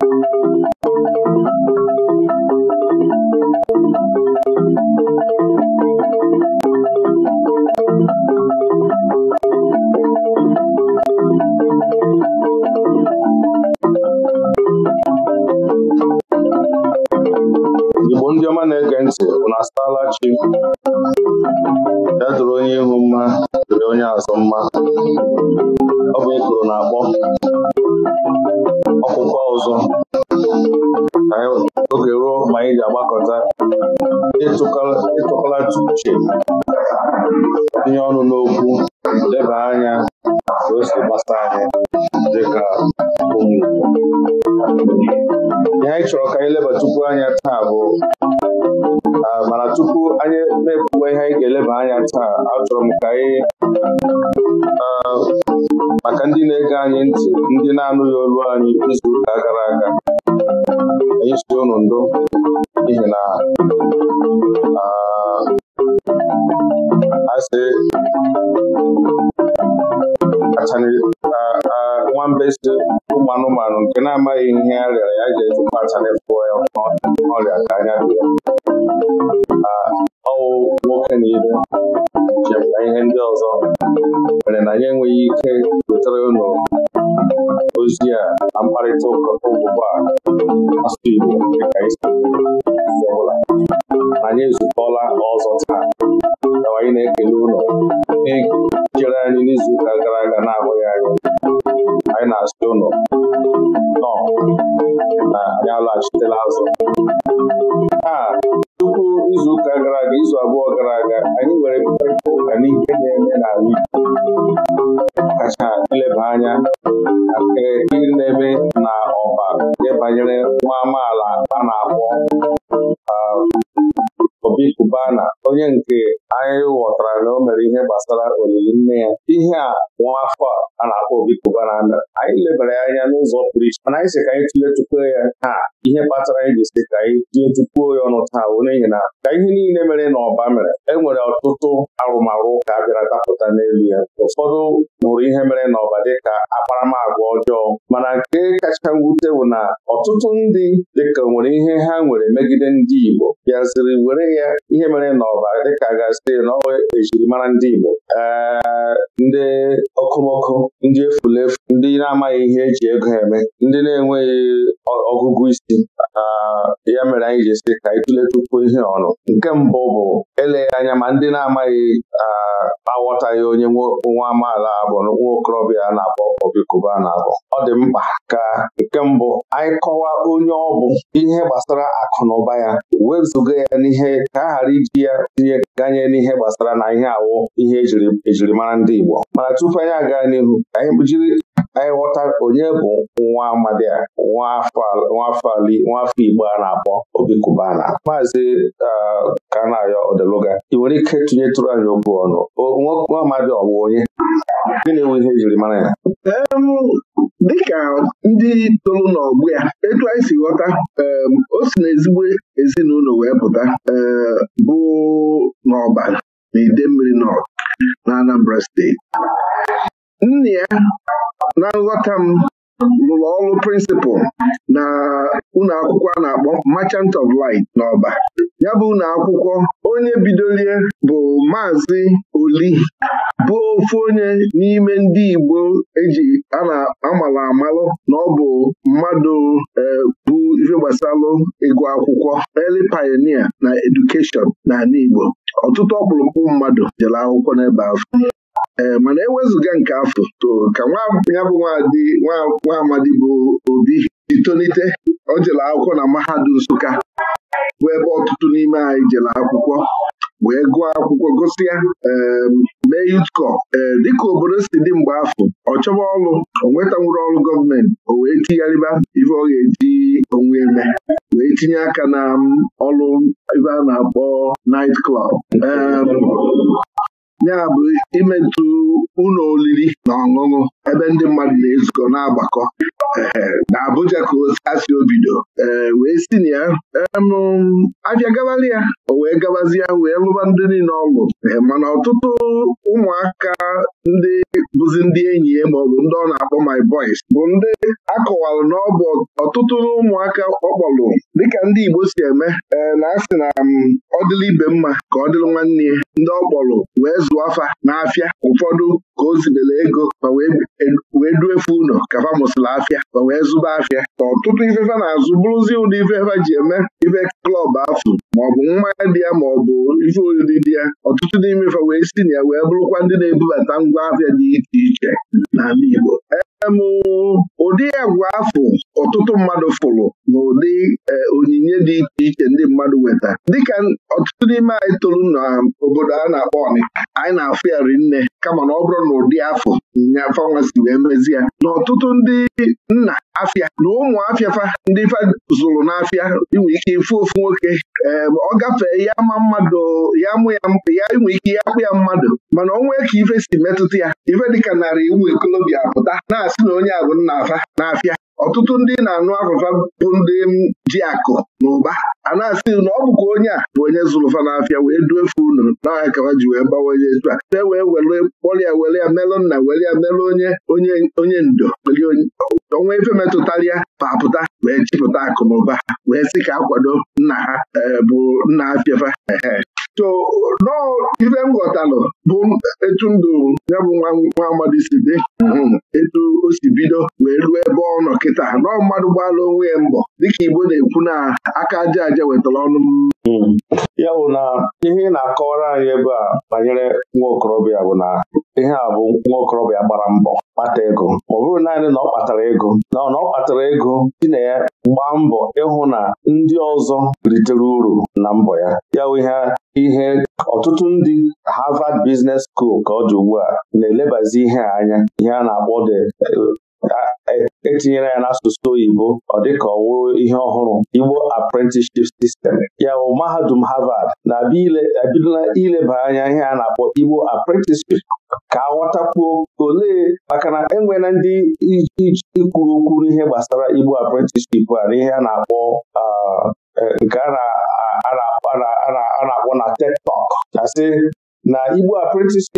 Igbo ndị ọma na-ege ntị na-asala chi ihe chere anyị ụka gara aga na-abụghị anyị anyị na-asị ụlọ nọ na anyị alaghachitela azụ iche mana anyị e sị ka anyị e e ya taa ihe kpatara anyị ji sị ka anyị chukwuo ya ọnụ taa bụ n'ihi na ka ihe niile mere na ọba mere e nwere ọtụtụ arụmarụ ka a bịara dapụta n'elu ya ụfọdụ hụrụ ihe mere n'ọba dịka akparamagwa ọjọọ mana nke kacha mwute bụ na ọtụtụ ndị dịka nwere ihe ha nwere megide ndị Igbo bịaziri were ya ihe mere n'ọba dịka gasị na ọ ejirimara ndị Igbo ee ndị okomoko ndị efulefu ndị na-amaghị ihe eji ego eme ndị na-enweghị ọgụgụ isi ya mere anyị ji esi ka anyị tụletukwuo ihe ọnụ nke mbụ bụ eleghị anya ma ndị na-amaghị aghọtaghị onye nwa amaala abụọ. nwa okorobịa a na-akpọ Obi na-akpọ ọ dị mkpa ka nke mbụ anyị kọwa onye ọ bụ ihe gbasara akụ na ụba ya wezụga ya n'ihe ka a ghara iji ya tinye ganye n'ihe gbasara na ihe awụ ihe ejirimara ndị Igbo mana tupu anyị aga n'ihu anyị jiri anyị ghọta onye bụ nwa amadi a nwafọ Igbo a na-akpọ Obi Cubana maazị Kanayo Odeluga ị nwere ike tụnyetụrụ anyị okwu ọnụ nwa amadi ọ bụ onye gịnị bụ ihe jiri mara ya dịka ndị tolu n'ọgbọ ya etu anyị si ghọta o si na ezigbo ezinụlọ wee pụta bụ n'ọba na mmiri North na Anambra steeti nna ya na nghọta m rụrụ ọrụ prịnsịpụl na ụlọ akwụkwọ a na-akpọ Merchant of Light n'Ọba ya bụ ụlọ akwụkwọ onye bidolie bụ Maazị Oli bụ ofu onye n'ime ndị Igbo eji a na amalụ amalụ na ọ bụ mmadụ e, bụ ife gbasalụ ịgụ akwụkwọ eli pioneer na edukeshọn n'ala Igbo ọtụtụ ọkpụrụkpụ mmadụ jere akwụkwọ n'ebe ahụ ee eh, mana ewezụga nke afọ to ka ya bụ nwa amadi bụ obi itonite o jere akwụkwọ na mahadum Nsụka bụ ebe ọtụtụ n'ime anyị jere akwụkwọ wee gụọ akwụkwọ gosi ya mee yutkọ ee eh, dịka obodo si dị mgbe afọ ọ chọba ọrụ o nwetanwuru ọrụ gọọmenti o wee tigharịba ife ọ ga-eji onwe eme wee tinye aka na ọrụ ebe a na-akpọ naịt klọb. ya bụ imetụ ụlọ oriri na ọṅụṅụ ebe ndị mmadụ na-ezukọ na-agbakọ na Abuja ka asị obido ee wee si na ya abịa gabali ya o wee gabazie wee lụba ndị niile ọlụ mana ọtụtụ ụmụaka ndị bụzi ndị enyi ya maọbụ ndị ọ na-akpọ my boys bụ ndị akọwalụ na ọ ọtụtụ ụmụaka ọkpọlụ dịka ndị Igbo si eme ee eh, na asị na mm, ọ dịla ibe mma ka ọ dịrị nwanne ya ndị ọ kpọrọ wee zụọ afa n'afịa ụfọdụ ka o zibere ego wee e, wee efe ụlọ ka fa mụsịrị afịa ma wee zụba afịa ka ọtụtụ ifefe na-azụ bụrụzi ụdị ifefe ji eme ife klọb afụ maọbụ mmanya dị ya maọbụ ife oriri dị ya ọtụtụ n'ime ife wee si na ya wee bụrụkwa ndị na-ebubata ngwa afịa dị iche iche n'ala Igbo em ụdị agwa afụ ọtụtụ mmadụ fụrụ n'ụdị eh, onyinye dị iche iche ndị mmadụ nweta. dịka ọtụtụ n'ime anyị tụrụ na obodo a na-akpọ ọnị anyị na-afụ ya rinne nne kama na ọ bụrụ na ụdị afọ ya fanwasi wee mezi ya na ọtụtụ ndị nna afịa na ụmụ afịafa ndị fa zụrụ n'afịa inwe ike ifu ofu nwoke eh, ọ gafee ya ma mmadụ ya mụ ya ya inwe ike ya akpụ ya mmadụ mana nwee ka ife si metụta ya ife dịka narị ụmụ ikolobịa pụta na-asị na onye a bụ nna afa n'afịa ọtụtụ ndị na-anụ afụfa bụ ndị ji akụ na ụba a na-asị na ọ bụkwa onye a bụ onye zụrụ na n'afịa wee duefe unu n'ahịa ka ha ji wee gbawanye etu a te wee were kpọrịa were ya melụ nna were ya melụ onye onye onye ndo ọnwa ife metụtara ya papụta wee chịpụta akụ na ụba wee sị ka akwado nna ha eh, bụ nna afịafa so nọọ ife m bụ etu ndụ ya bụ nwa amadi si dị um, etu o si bido wee ruo ebe ọ nọ kịta nọọ mmadụ gbalụ onwe ya mbọ dịka Igbo na-ekwu na aka aja aja wetara ọnụ hmm. ya bụ na ihe na-akọwara anyị ebe a banyere nwa okorobịa bụ na ihe a bụ nwa okorobịa gbara mbọ kpata ego ma ọ bụrụ naanị na ọ kpatara ego na ọ kpatara ego dị na ya gbaa mbọ ịhụ na ndị ọzọ ritere uru na mbọ ya ya ha ihe ọtụtụ ndị Harvard Business School ka ọ dị ugbu a na-elebazi ihe a anya ihe a na-akpọ the etinyere ya n'asụsụ oyibo ọ dịka ọ wụrụ ihe ọhụrụ Igbo apprenticeship system ya bụ mahadum Harvard na-ebidola ileba anya ihe a na-akpọ Igbo apprenticeship ka aghọtakwuo olee maka na enwela ndị ikwuru okwu ihe gbasara Igbo apprenticeship a na ihe a na-akpọ nke a na-akpọ na na na igbu apprentice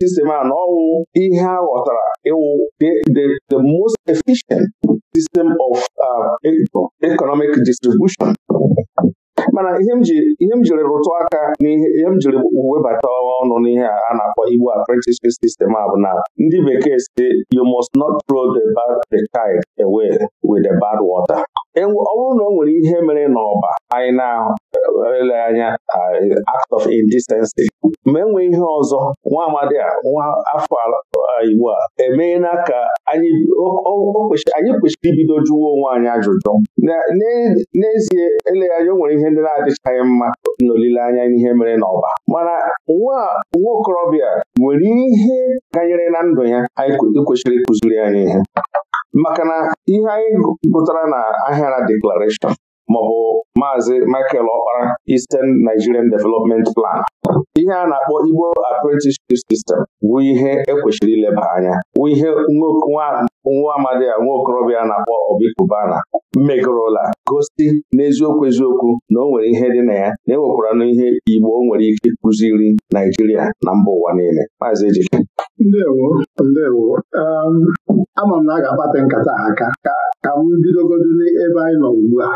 system a na ọwụ ihe a ghọtara ịwụ the most efficient system of uh, e, economic distribution mana ihe m jiri rụtụ aka n'ihe ihe m jiri webata ọnụ n'ihe a na-akpọ igbu apprenticeship system a bụ na ndị bekee si you must not throw the bad the child away with the bad water ọ bụrụ na o nwere ihe mere n'ọba anyị na-ele anya uh, act of indecency ma enwe ihe ọzọ nwa amadi a nwa afọ uh, igbo a emeela ka anyị kwesịrị ibido jụwa onwe anyị ajụjụ n'ezie eleghị anya o nwere ihe ndị na-adịchaghị mma n'olileanya ihe mere n'ọba mana nwa okorobịa nwere ihe ganyere na ndụ ya anyị kwesịrị ịkụziri anyị ihe maka na ihe anyị gụtara na ahịara deklarashọn maọbụ maazị Michael Ọkpara Eastern Nigerian Development Plan ihe a na-akpọ Igbo Apprenticeship System bụ ihe ekwesịrị ileba anya bụ ihe nwa amadi a nwa okorobịa na-akpọ Obikubana megorola gosi n'eziokwu eziokwu na o nwere ihe dị na ya na enwekwara n'ihe Igbo nwere ike ịkụziri Naijiria na mba ụwa niile maazị Ejike ndewo ndewo um, ama m na a ga-akpata nkata aka ka m bidogodu n'ebe anyị nọ ugbu a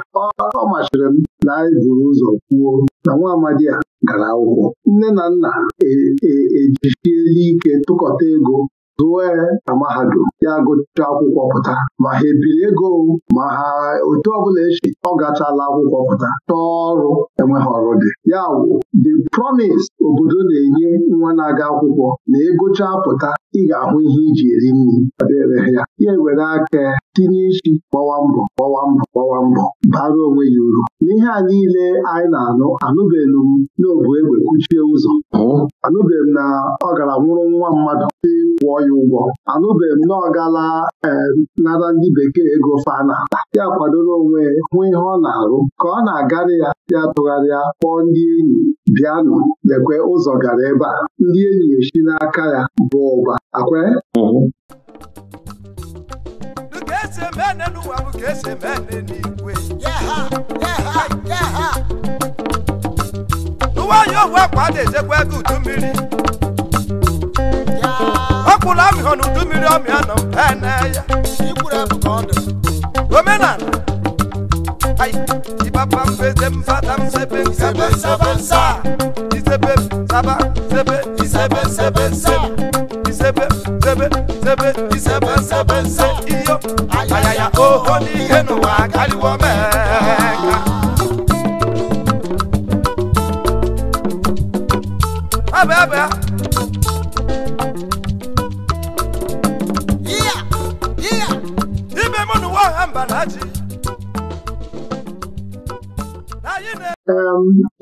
ọ machiri m na anyị buru ụzọ kwuo na nwa amadi a gara akwụkwọ nne na nna ejichiela e, e ike tụkọta ego zụọ na mahadum ya gụcha akwụkwọ pụta ma ha ebiri ego ma ha otu ọbụla echi ọ gachala akwụkwọ pụta n'ọrụ ọrụ enweghị ọrụ dị ya wụ the promise obodo na-enye nwa na-aga akwụkwọ na ego pụta ị ga-ahụ ihe iji eri nri dịrị ya ya ewere aka tinye isi gbawa mbọ gbawa mbọ gbawa mbọ bara onwe ya uru n'ihe a niile anyị na-anụ anụbeghị m n'obu egbe kuchie ụzọ anụbeghị m na ọ gara nwụrụ nwa mmadụ dị kwụọ ya ụgwọ anụbeghị m na ọ gala eh, nara ndị bekee ego Fana. ya kwadoro onwe hụ ihe ọ na-arụ ka ọ na-agarị ya ya tụgharịa kpọọ ndị enyi bịanụ lekwe ụzọ gara ebe a ndị enyi esi n'aka ya bụ ụba akwe esi eme ene n'ụwa bụ ka esi eme na udu mmiri ọ na mmiri ọmịa nọ ene ya omenala ibaba mbeze mfata msebe nsebe nsebe nsa isebe nsaba nsebe isebe nsebe nsebe sebe sebe sebe isebe nsebe nse iyo ayaya oho n'ihe n'ụwa karịwo meka abịa abịa ime mụ n'ụwa ọha mba na ji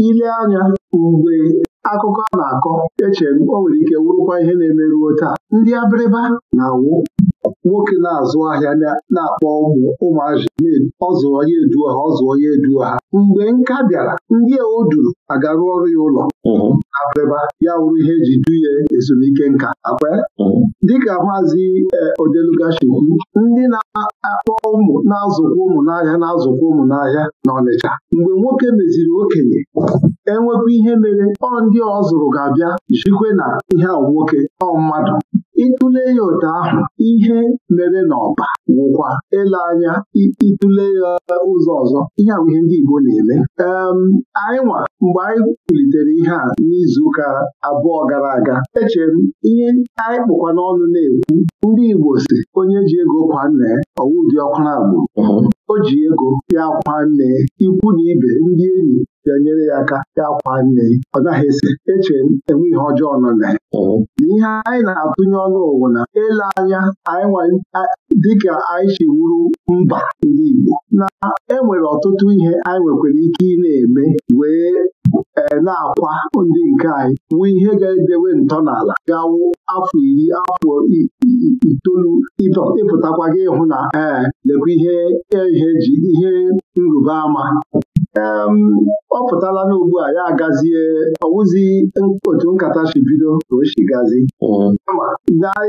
ile anya mgbe akụkọ a na-akọ eche m o nwere ike wụrụkwa ihe na-emeruo taa ndị abịrịba na-awụ nwoke na-azụ ahịa na-akpọ ụmụ ụmụazị ọzụ onye eduo ha ọzụ onye eduo ha mgbe nka bịara ndị a agarụ duru ọrụ ya ụlọ abịrịba ya wụrụ ihe eji duye ezumike nka akpa dịka maazi e, odelugashikwu ndị na-akpọ ụmụ na-azụkwa ụmụ n'ahịa na-azụkwa ụmụ n'ahịa na Ọnịcha mgbe nwoke meziri okenye enwekwa ihe mere ọ ndị ọ zụrụ ga-abịa jikwe na ihe ahụ nwoke ọ mmadụ ịtụle ya ụta ahụ ihe mere n'ọba nwụkwa ele anya ịtụle ya ụzọ ọzọ ihe a ndị Igbo na-eme anyị nwa mgbe anyị kwulitere ihe a n'izuụka abụọ gara aga echere m ihe anyị kpụkwa n'ọnụ na-ekwu ndị Igbo si onye ji ego kwa nna ya ọwụ dị na agbụrụ mhm. o ji ego ya kwa nne ikwu na ibe ndị enyi ga nyere ya aka ya kwa nne ọ naghị ese eche enwe ihe ọjọọ nọ na ya ihe anyị na-atụnye ọnụ ụwa na ele anya anyị dịka anyị si wuru mba ndị Igbo na enwere ọtụtụ ihe anyị nwekwara ike ị na-eme wee e, na-akwa ndị nke anyị nwee ihe ga-edewe ntọala gawo afọ iri afọ itoolu ịpụtakwa gị ịhụ na ee lekwa ihe e, ihe nrụba ama ọ pụtala n'ugbu a ya agazie ọwụzi otu nkata si bido ka o si gazi mm-hmm. kama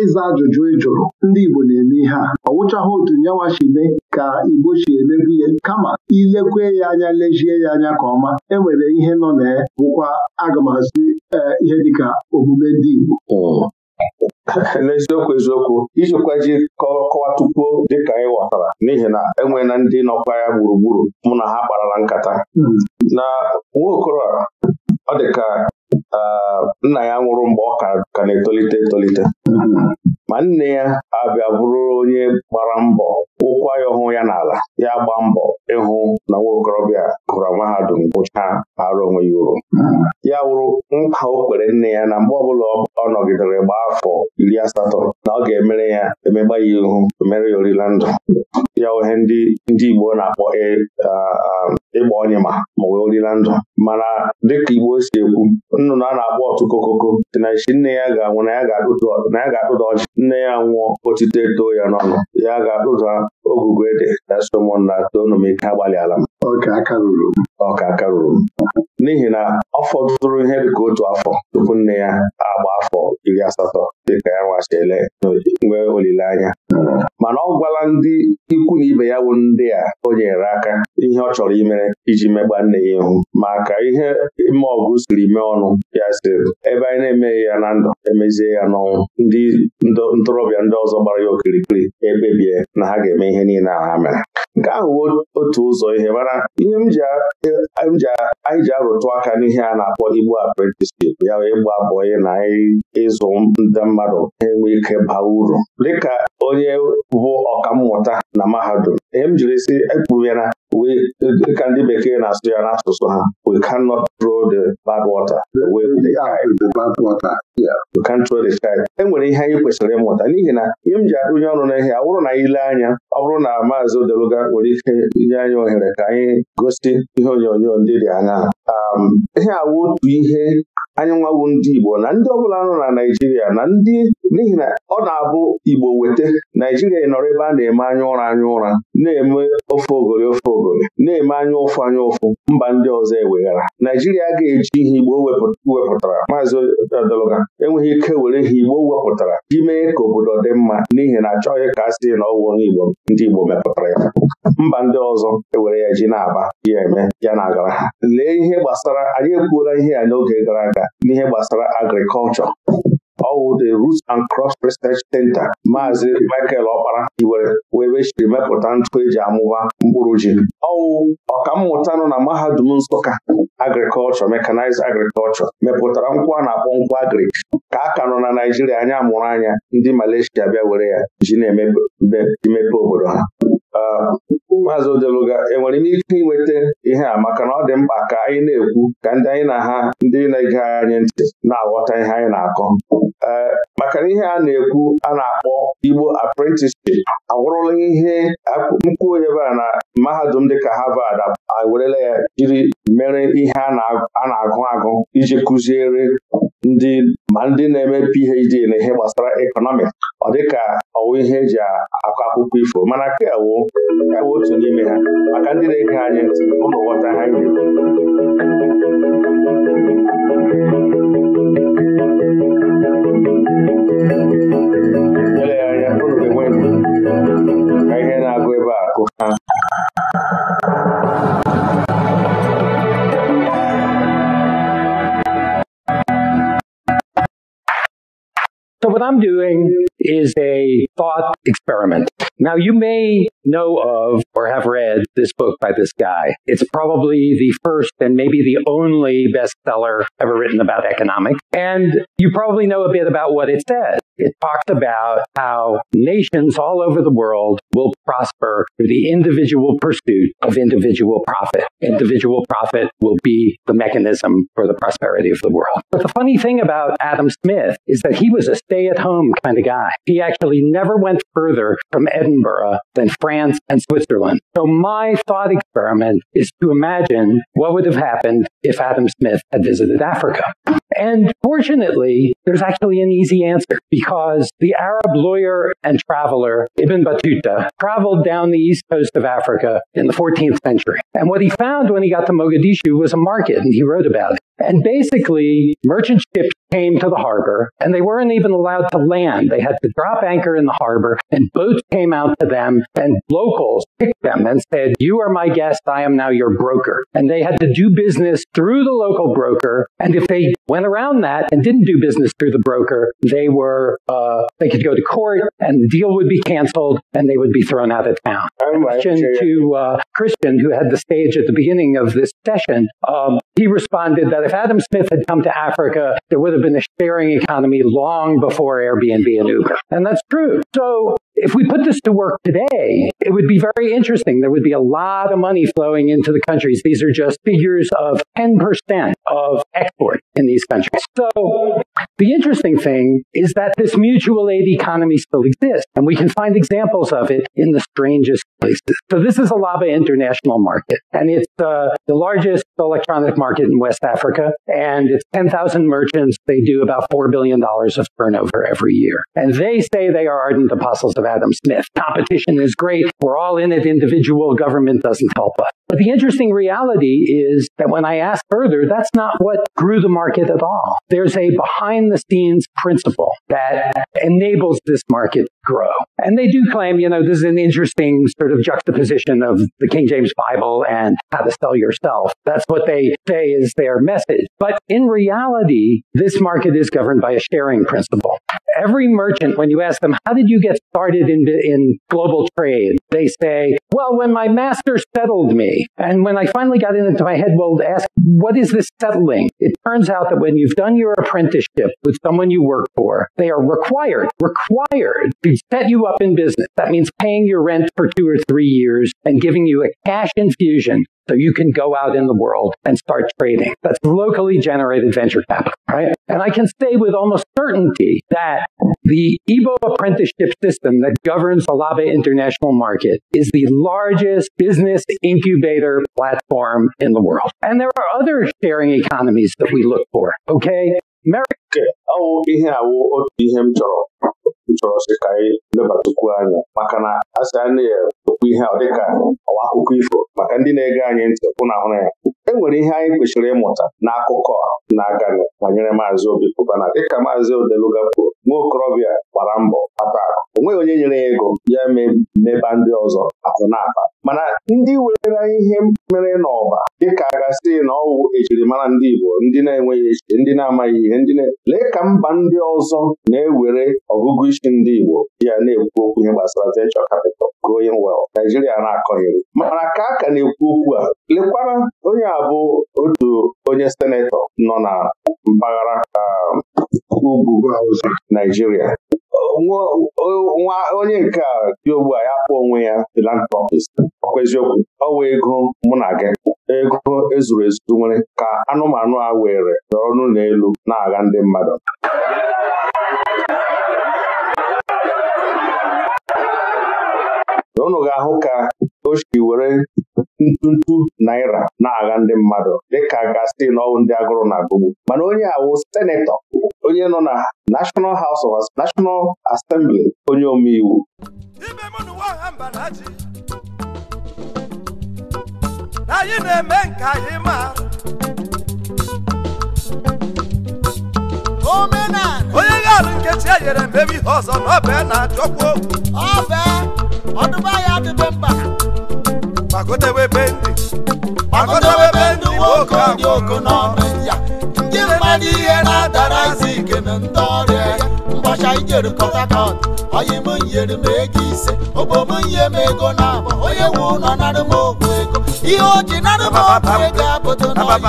ịza ajụjụ ịjụrụ ndị Igbo na-eme ihe a ọ otu nyanwa si mee ka Igbo si emebu ihe kama ilekwe ya anya lejie ya anya ka ọma enwere ihe nọ na ya bụkwa agamazi eh, ihe dịka omume ndị Igbo mm-hmm. n'eziokwu eziokwu ijikwa ji kọwatukwuo dịka anyị ghọtara n'ihi na enwe na ndị nọkwa ya gburugburu mụ na ha kparara nkata hmm. na nwa okoro a ọ dị ka nna ya nwụrụ mgbe ọ ka na-etolite etolite hmm. ma nne ya abịa bụrụ onye gbara mbọ ụkwa ya ọhụụ ya n'ala ya gba mbọ ịhụ na nwa okorobịa gụrụ mahadum gụchaa arụ onwe ya uru hmm. ya wụrụ nkwa o kwere nne ya na mgbe ọbụla ọ nọgidere gbaa afọ iri asatọ na ọ ga-emere ya emegba ya ihu emere ya orila ndụ ya ohe ndị Igbo na-akpọ e, ịgba onye ma ma orila ndụ mana dịka Igbo si ekwu nnụnụ a na-akpọ ọtụkokoko si na isi nne ya ga-anwụ na ya ga-akpụda ọchị nne ya nwụọ otite too ya n'ọnụ ya ga-akpụda ogugo ede na somon na toonum ike agbalị ala m ọka aka ruru m n'ihi na ọ fọdụrụ ihe dịka otu afọ tupu nne ya agba afọ iri asatọ dịka ya nwachele nwee olileanya mana ọ gwala ndị ikwu na ibe ya bụ ndị a o nyere aka ihe ọ chọrọ imere iji megba nne ya ihu maka ihe ime ọgụ siri mee ọnụ ya siri, ebe anyị na-emeghị ya na ndụ emezie ya n'ọnwụ ndị ntorobịa ndị ọzọ gbara ya okirikiri ebebie na ha ga-eme ihe niile a ha mere nke ahụ otu ụzọ ihe mana ihe anyị ji arụtụ aka n'ihe a na-akpọ Igbo apprenticeship ya wee abụọ ya na anyị ịzụ ndị mmadụ enwe ike baa uru dịka onye bụ ọkammụta na mahadum m jiri si ekpughera dịka ndị bekee na-asụ ya n'asụsụ ha we cannot throw the bad water away with the e nwere ihe anyị kwesịrị ịmụta n'ihi na ihe m ji adụnye ọnụ n'ihe a bụrụ na ile anya ọ bụrụ na maazị Odeluga nwere ike nye anyị ohere ka anyị gosi ihe onyonyo ndị dị anya um, ihe awụ otu ihe anyị nwawu ndị Igbo na ndị ọbụla nọ na Naijiria na ndị n'ihi na ọ na-abụ Igbo weta Naijiria nọrọ ebe a na-eme anya ụra anya ụra na-eme ofe ogori ofe ogori na-eme anya ụfụ anya ụfụ mba ndị ọzọ eweghara Naijiria ga-eji ihe Igbo wepụtara maazị Odologa enweghị ike were ihe Igbo wepụtara ji mee ka obodo dị mma n'ihi na achọghị ka a sị na ọwụ onye Igbo ndị Igbo mepụtara ya mba ndị ọzọ ewere ya ji na-aba ya eme ya na-agara lee ihe gbasara anyị ekwuola ihe ya n'oge gara aga n'ihe gbasara agrikọlchọ ọwụ the Roots and Cross Research Center maazị Michael Ọkpara hiwere webe chiri mepụta ntụ eji amụba mkpụrụ ji ọwụ ọkammụta nọ na mahadum Nsụka agrikọlchọ mekanized agrikọlchọ mepụtara nkwụ a na-akpọ nkwụ agrik ka a ka nọ na Naijiria anya mụrụ anya ndị Malaysia bịa were ya ji na-emepe obodo ha Maazị Odeluga enwere m ike inweta ihe a maka na ọ dị mkpa ka anyị na-ekwu ka ndị anyị na ha ndị na-ege anyị ntị na-aghọta ihe anyị na-akọ ee eh, maka na ihe a na-ekwu a na-akpọ Igbo apprenticeship agwụrụla ihe mkpu onye a na mahadum dịka Harvard awerela ya jiri mere ihe a na-agụ agụ iji kụziere ndị ma ndị na-eme PhD na ihe gbasara ekọnọmiks ọ dịka ọwụ ihe eji akọ akụkọ ifo mana kewo kewo otu n'ime ha maka ndị na-ege anya ntị ụlọ ghọta ha nyere eleghị anya ụrụ ga-enwe ihe na-agụ ebe a akụ ha m what I'm doing is a thought experiment. Now, you may know of or have read this book by this guy. It's probably the first and maybe the only bestseller ever written about economics. And you probably know a bit about what it says. It talks about how nations all over the world will prosper through the individual pursuit of individual profit. Individual profit will be the mechanism for the prosperity of the world. But the funny thing about Adam Smith is that he was a stay at home kind of guy. He actually never went further from Edinburgh than France France, and Switzerland. So my thought experiment is to imagine what would have happened if Adam Smith had visited Africa. And fortunately, there's actually an easy answer because the Arab lawyer and traveler Ibn Battuta traveled down the east coast of Africa in the 14th century. And what he found when he got to Mogadishu was a market, and he wrote about it. And basically, merchant ships came to the harbor and they weren't even allowed to land. They had to drop anchor in the harbor and boats came out to them and locals picked them and said, you are my guest. I am now your broker. And they had to do business through the local broker. And if they went around that and didn't do business through the broker, they were, uh, they could go to court and the deal would be canceled and they would be thrown out of town. Oh, Christian to, uh, Christian, who had the stage at the beginning of this session, um, he responded that if Adam Smith had come to Africa, there would have been a sharing economy long before Airbnb and Uber. And that's true. So If we put this to work today, it would be very interesting. There would be a lot of money flowing into the countries. These are just figures of 10% of export in these countries. So the interesting thing is that this mutual aid economy still exists, and we can find examples of it in the strangest places. So this is a Alaba International Market, and it's uh, the largest electronic market in West Africa, and it's 10,000 merchants. They do about $4 billion of turnover every year. And they say they are ardent apostles of Adam Smith. Competition is great. We're all in it individual. Government doesn't help us. But the interesting reality is that when I ask further, that's not what grew the market at all. There's a behind the scenes principle that enables this market to grow. And they do claim, you know, this is an interesting sort of juxtaposition of the King James Bible and how to sell yourself. That's what they say is their message. But in reality, this market is governed by a sharing principle. every merchant, when you ask them, how did you get started in, in global trade? They say, well, when my master settled me. And when I finally got into my head, well, ask, what is this settling? It turns out that when you've done your apprenticeship with someone you work for, they are required, required to set you up in business. That means paying your rent for two or three years and giving you a cash infusion So you can go out in the world and start trading. That's locally generated venture capital, right? And I can say with almost certainty that the Igbo apprenticeship system that governs Olabe international market is the largest business incubator platform in the world. And there are other sharing economies that we look for, okay? America nke ọwụ ihe awụ otu ihe m chọrọ m chọrọ sị ka anyị lebatụkwuo anya maka na a sị a na ihe ọ dịka ọwa akụkọ ifo maka ndị na-ege anyị ntị ụna ahụrụ ya e nwere ihe anyị kwesịrị ịmụta n'akụkọ na-aganị banyere maazị Obi Kubana dịka maazị Odeluga kwuru nwa okorobịa gbara mbọ ata o nweghị onye nyere ya ego ya meba ndị ọzọ akụ na mana ndị were ihe mere n'ọba dịka a na ọwụ ejirimara ndị Igbo ndị na-enweghị echiche ndị na-amaghị ihe ndị lee ka mba ndị ọzọ na-ewere ọgụgụ isi ndị Igbo di ya na-ekwu okwu ihe gbasara venture capital growing well Naijiria na akọnyere mana ka a ka na-ekwu okwu a lekwara onye a bụ otu onye senetọ nọ na mpaghara um, ugwu Naijiria onye nke a dị ogbu a ya kpọọ onwe ya filantropist ọkwa eziokwu ọwa ego mụ na gị ego ezuru ezu nwere ka anụmanụ a were n'ọnụ n'ụlọ elu na aga ndị mmadụ unu ga-ahụ ka o si were ntụntụ naira na-agha ndị mmadụ dịka gasị n'ọnwụ ndị agụrụ na-agụgbu mana onye awụ senetọ onye nọ na National House of National Assembly onye omeiwu anyị na-eme nke anyị mara onye ga-alụ nkechi e nyere mbebe ihe ọzọ na ọbe na-achọkwa owu gbagodebe be ndị gbagodebe ndị nwoke ndị oku n'ọnụ ya ndị mmadụ ihe na izi ike na ndị ọrịa ya ụbọchị anyị jere Port Harcourt onye m nyere m ego m ego na onye ego ihe o ji m ogbu ego abụdo na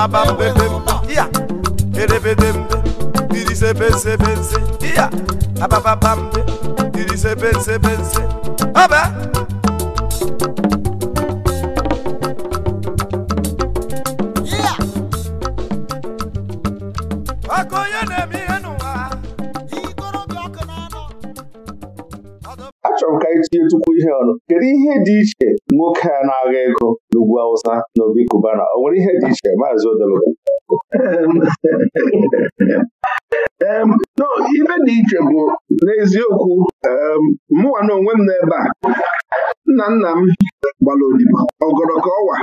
ihe dị iche nwoke a na-agha ego n'ugwu Awụsa na Obi Kubana O nwere ihe dị iche maazị Odelokwu ibe dị iche bụ n'eziokwu mụnwa na onwe m n'ebe a nna nna m gbara odibo ọgọrọ ka ọwa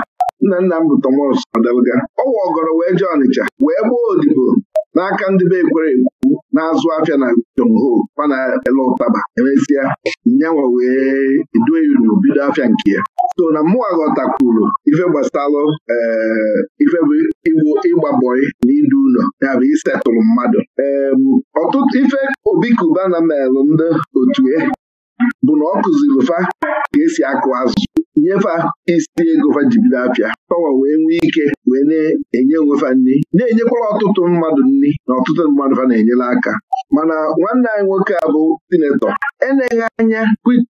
nna nna m bụ tomos Ọdalga ọwa ọgọrọ wee jee Ọnịcha wee gbuo odibo n'aka ndị be ekwere egwu na-azụ afịa na Jomho mana ele ụtaba emesịa nyanwa wee edue unu bido afịa nke ya so na mụnwa ghọtakwuru ife gbasalụ eh, ife bụ ịgba bọị na idu ụlọ ya bụ isetụrụ mmadụ ọtụtụ ife obi na melụ ndị otu e, bụ na ọ kụziri ụfa ka esi akụ azụ nyefa isi ego fa apịa pawa wee nwee ike wee na-enye onwefa nri na enyekwala ọtụtụ mmadụ nri na ọtụtụ mmadụ fa na-enyere aka mana nwanne anyị nwoke a bụ sinetọ eneghị anya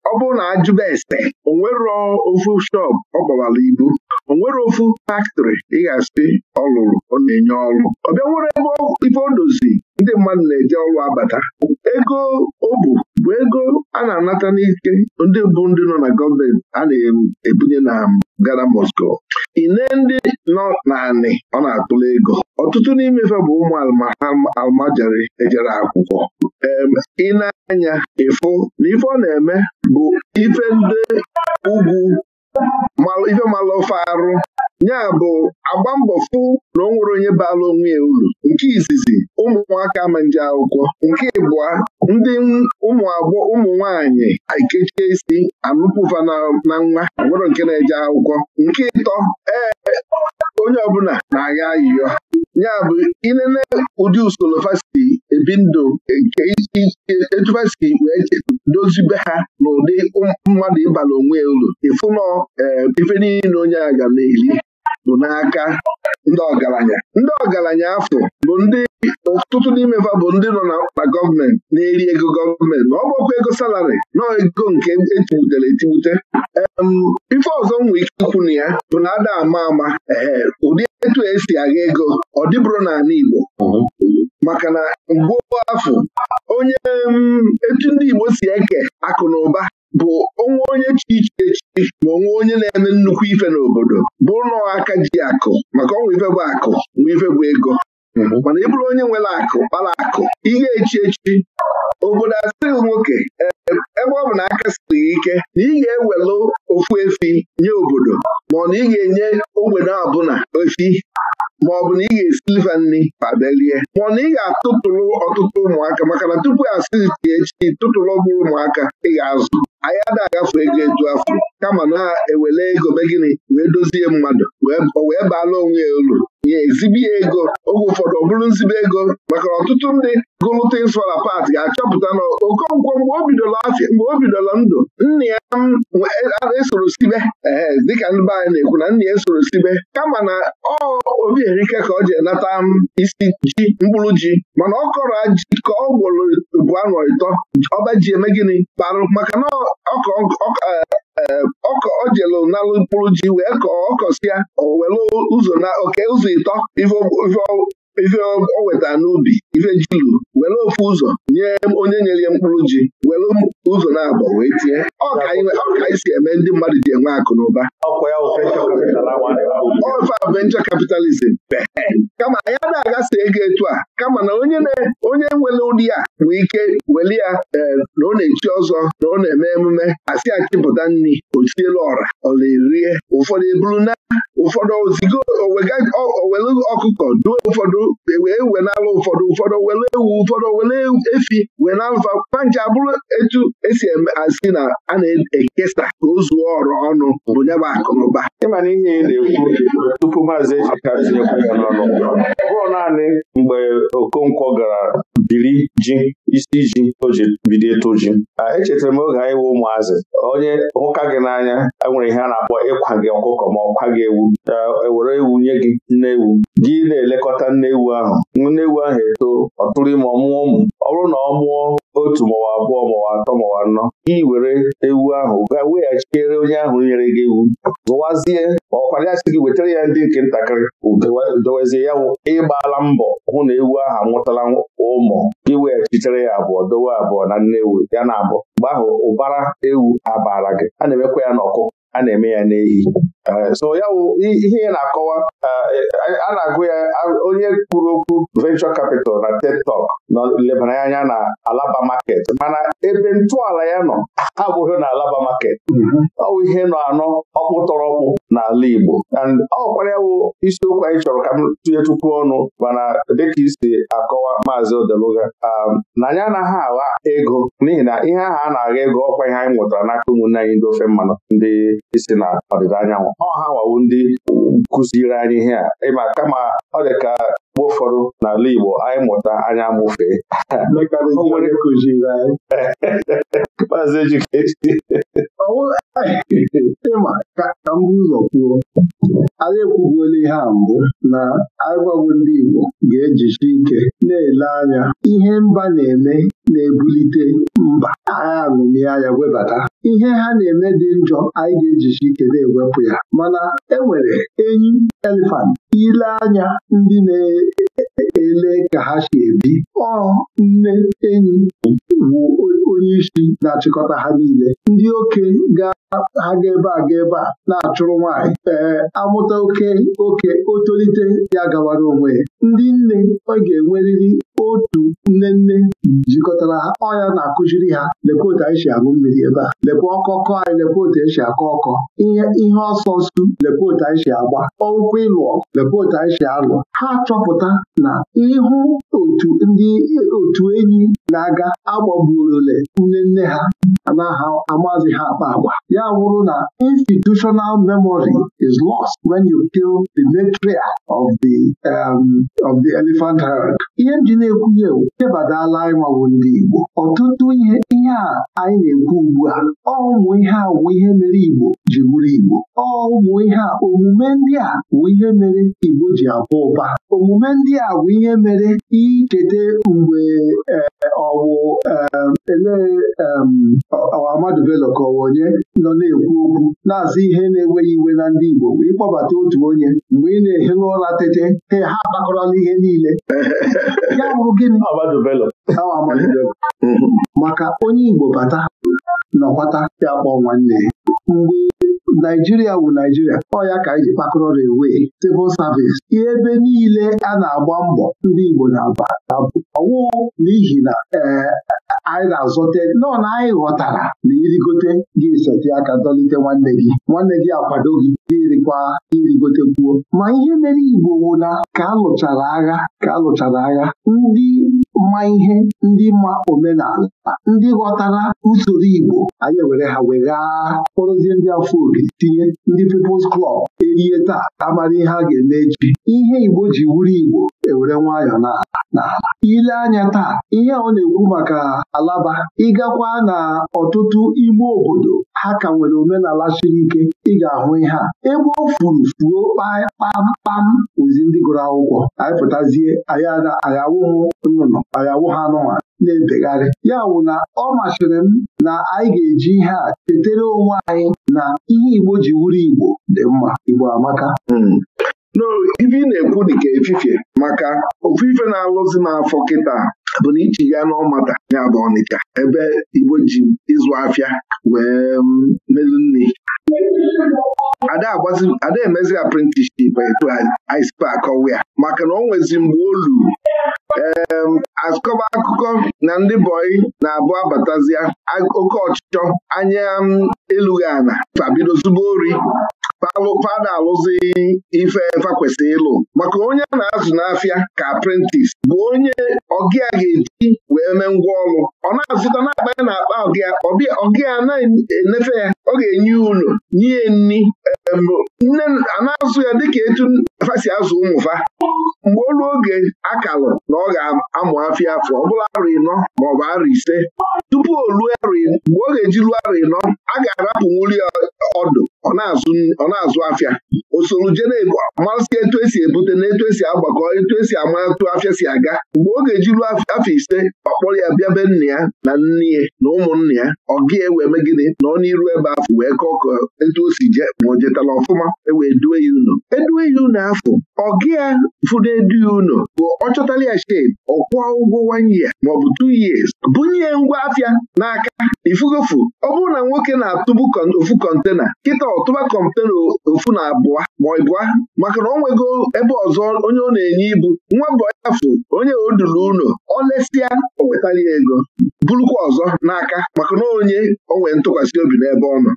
ọ bụrụ na ajụba ese onwere ofu shọp ọ gbawara ibu onwere ofu faktrị ị ọlụrụ ọ lụrụ ọ na-enye ọrụ ọbịa nwere ebe ife o dozi ndị mmadụ na-eje ọrụ abata ego o bụ bụ ego a na-anata n'ike ndị bụ ndị nọ na gọọmenti a na-ebunye na gana Moscow ine ndị nọ naanị ọ na-atụla ego ọtụtụ n'imefe bụ ụmụ almajari ejere akwụkwọ ị na-anya ịfụ na ife ọ na-eme bụ ife ndị ugwu ife malụ ofe arụ ya bụ agba mbọ fụ na ọ nwere onye baala onwe ya uru nke izizi ụmụaka ama nje akwụkwọ nke ịbụa ndị ụmụ agbọ ụmụ nwaanyị ekechie isi anụpụva na nwa nwere nke na-eje akwụkwọ nke ịtọ ee onye ọbụla na-agha ayịyọ ya bụ ịlele ụdị usoro fasiti ebi ndụ nke etu wee dozibe ha n'ụdị mmadụ ịbala onwe ya uru ịfụnọ e, ife niile onye a ga na-eli bụ n'aka ndị ọgaranya ndị ọgaranya afọ bụ ndị ọtụtụ n'ime va bụ ndị nọ na gọọmenti na-eri ego gọọmenti ma ọ bụkwa ego salarị nọọ ego nke etibutere etibute ife ọzọ nwere ike ikwu na ya bụ na ada ama ama ee ụdị etu esi agha ego ọ dịbụrụ n'ala Igbo maka na mgbe afọ onye etu ndị Igbo si eke akụ na ụba bụ onwe onye chi iche echi ma onwe onye na-eme nnukwu ife n'obodo bụ nnọọ aka ji akụ maka ọnwa ife bụ akụ nwa ife bụ ego mana ị bụrụ onye nwere akụ kpara akụ ihe echi echi obodo asịrị nwoke ebe ọ bụ na aka siri ike na ị ga-ewelụ ofu efi nye obodo ma ọ na ị ga-enye ogbenye ọbụla efi ma ọ bụ na ị ga-esi liva nri pabelie ma ọ na ị ga-atụtụrụ ọtụtụ ụmụaka maka na tupu asị tie echi tụtụrụ ọgwụ ụmụaka ị ga-azụ anyị ada agafe ego etu afọ kama na-ewele ego be gịnị wee dozie mmadụ wee baala onwe ya olu ya ezibi ya ego oge ụfọdụ ọ bụrụ nzibe ego maka ọtụtụ ndị gụlụta ịsụra pat ga-achọpụta na Okonkwo mgbe o bidoro afịa mgbe ndụ nna ya esoro sibe ee dịka ndị be anyị na-ekwu na nna ya esoro sibe kama na ọ obi erike ka ọ ji nata isi ji mkpụrụ ji mana ọ kọrọ ji ka ọ gwọrọ ubu anọ ịtọ ọba ji eme gịnị kparụ maka na ọkọ e, e, ojelu nalụ mkpụrụ ji wee kọọ ọkọsi ya o were ụzọ na oke ụzọ ịtọ ife ife o weta n'ubi ife jilu were ofu ụzọ nye onye nyere ya mkpụrụ ji were ụzọ na-abọ wee tie ọka anyị si eme ndị mmadụ ji enwe akụ na ụba ofe venture capitalism kama ya na-aghasa ego etu a kama na onye onye nwere ụdị ya nwee ike weli ya e, na ọ na-echi ọzọ na ọ na-eme emume asị achịpụta nri o ọra ọ na-erie ụfọdụ eburu na ụfọdụ ozigo owele ọkụkọ duo ụfọdụ e wee wenalụ ụfọdụ ụfọdụ wele ewu ụfọdụ wele efi wee nalụfa kwanche abụrụ etu esi asị na a na-ekesa ka o zuo ọrụ ọnụ bụ nyaba akụnụba ịmana ihe na-ekwu tupu maazị ejika tinyekwu ya n'ọnụ ọ bụrụ naanị mgbe okonkwo gara biri ji isi ji o ji bido ịtụ ji echetara m oge anyị wụ ụmụazị onye hụka gị n'anya e nwere ihe a na-akpọ ịkwa gị ọkụkọ ma ọkwa gị ewu ewere e ewu nye gị nne ewu gị na-elekọta nne ewu ahụ nne ewu ahụ eto ọ tụrụ ime ọmụọ ụmụ ọ bụrụ na ọ mụọ otu mawa abụọ mawa atọ mawa anọ gị were ewu ahụ ga weghachiere onye ahụ nyere gị ewu gbazie ma ọ ya si gị wetara ya ndị nke ntakịrị dowezie ya ịgbala mbọ hụ na ewu ahụ amụtala ụmụ gị weghachitere ya abụọ dowe abụọ na nne ewu ya na abụọ mgbe ahụ ụbara ewu abara gị a na-emekwa ya n'ọkụ a na-eme ya n'ehi eh, so ya ihe na-akọwa eh, a na-agụ ya onye kwuru okwu venture capital na TED Talk nọ lebara ya anya na alaba market mana ebe ntọala ya nọ abụghị na alaba market mm-hmm. ọ wụ ihe nọ anọ ọkpụtọrọkpụ n'ala Igbo and ọkwara wụ isiokwu anyị chọrọ ka m tụnye tupu ọnụ mana dịka isi akọwa maazị Odeluga um, na anyị anaghị agha ego n'ihi na ihe ahụ a na-agha ego ọkwa ihe anyị nwetara n'aka ụmụnne anyị ndị ofe mmanụ ndị isi na ọdịda anyanwụ ọha wawu ndị kụziri anyị ihe a ịma kama ọ dị mgbe ụfọdụ n'ala Igbo anyị mụta anya amụfee maazị ejikechi eh, ịma ka m ụzọ kwuo anyị ekwubuola ihe a mbụ na agwagwo ndị Igbo ga-ejisi ike na-ele anya ihe mba na-eme na-ebulite mba agha aṅụmị anya webata ihe ha na-eme dị njọ anyị ga ejiji ike na-ewepụ ya mana enwere enyi elefant ile anya ndị na-ele ka ha si ebi ọ nne enyi bụ onye isi na-achịkọta ha niile ndị oke ha ga-ebe a ga ebe a na-achụrụ nwanyị. ee amụta oke oke ya gawara onwe ndị nne ọ ga-enwerịrị jikọtara ha ọya na akụjiri ha lekwa otu anyị si aṅụ mmiri ebe a lekwa ọkọkọ anyị lekwa otu anyị si akọ ọkọ ihe ihe ọsọ nsu lekwa otu anyị si agba ọụkwụ ịlụọ lekwa otu anyị si alụ ha chọpụta na ịhụ otu ndị otu enyi na-aga agbagburole nne nne ha anaghị amazi ha akpa agwa ya wụrụ na institutional memory is lost wen you kill the matriarch of the um, of the elephant herd ihe m ji na-ekwunye chebadala anyị mawụ ọtụtụ ihe a anyị na-ekwu ugbu a ọ ụmụ ihe a wụ ihe mere Igbo ji bụrụ Igbo ọ ụmụ ihe a omume ndị a wụ ihe mere Igbo ji abụ ụba omume ndị a wụ ihe mere icheta mgbe eh, ọwụ eh, ele eh, Amadu ka onye nọ na-ekwu okwu na-azụ ihe na-enweghị iwe na ndị Igbo bụ ịkpọbata otu onye mgbe ị na-ehi n'ụra tete ha agbakọrọla ihe niile ya bụrụ gịnị maka onye Igbo bata nọkwata ya kpọọ nwanne ya mgbe Naijiria wụ Naijiria ọ ya ka anyị ji kpakọrọ rewee civil service ihe ebe niile a na-agba mbọ ndị Igbo na-aba ọwụ n'ihi na eh, anyị ga-azọte nọọ na anyị ghọtara na irigote gị seti aka dọlite nwanne gị nwanne gị akwado gị gị rikwa irigote kwuo ma ihe mere Igbo wụla ka alụchara agha ka alụchara agha ndị ma ihe ndị ma omenala ndị ghọtara usoro Igbo anyị ewere ha wee ghaa kpọrọzie ndị afọ obi tinye ndị People's klọb erie taa amara ihe a ga-eme echi ihe Igbo ji wuru Igbo ewere nwayọ na na ile anya taa ihe ọ na-ekwu maka alaba ịgakwa na ọtụtụ ime obodo ha ka nwere omenala siri ike ị ga-ahụ ihe a ebe o furu fuo kpamkpam ozi ndị gụrụ akwụkwọ anyị pụtazie ayawụhụ nnụnụ ayawụ ha anụnwa na-ebegharị ya wụ na ọ masịrị m na anyị ga-eji ihe a tetere onwe anyị na ihe Igbo ji wuru Igbo dị mma Igbo amaka hmm. ife ị na-ekwu dịka efifie maka ofufe ife na-alụzi n'afọ kịta bụ na ichi ya n'ọmata ya bụ Ọnịcha ebe Igbo ji ịzụ afịa wee mm, melu nri ada emezi apprenticeship etu anyị si akọwa ya maka na ọ nwezi mgbe olu ee akọba akụkọ na ndị bọyị na-abụ abatazia oke ọchịchọ anya mm, elughi ana fabido zubo ori fada alụzi ife fa kwesịrị ịlụ maka onye na-azụ n'afịa ka aprentis bụ onye ọgịa ga-eji wee mee ngwa ọlụ. ọ na-azụta na ya na akpa ọgịa ọgịa na-enefe ya ọ ga-enye unu nye nni nne na-azụ ya dịka etu fasi azụ ụmụfa. mgbe olu oge akalụ na ọ ga-amụ afịa afọ ọ bụla arụ ịnọ maọbụ arụ ise tupu o mgbe ọ ga-eji ruo arụ ịnọ a ga-arapụ nwuli ọdụ ọ na-azụ afịa o soro jee na-ego etu esi ebute na etu esi agbakọ etu esi ama atụ afịa si aga mgbe ọ ga-eji ruo afọ ise ọ kpọrọ ya bịa be nna ya na nne ya na ụmụnna ya ọgị ewe eme gịnị nọ n'iru ebe afọ wee kọọ ka etu o si je ma o jetala ọfụma ewe due ya unu edue ya unu afọ ọgị ya edu ya unu bụ ọ chọtala ya shep ọkwụọ ụgwọ one year maọbụ two years bunye ngwa afịa n'aka ifugofu ọ bụrụ na nwoke na-atụbu ofu kọntena kịta ọtụba kọntena ofu na abụọ ma ịbụa maka na ọ nwego ebe ọzọ onye ọ na-enye ibu nwa bụ afụ onye o duru unu ọ lesịa o wetara ya ego burukwa ọzọ n'aka maka na onye o nwere ntụkwasị obi n'ebe ọ nọ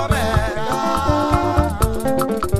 oh, oh,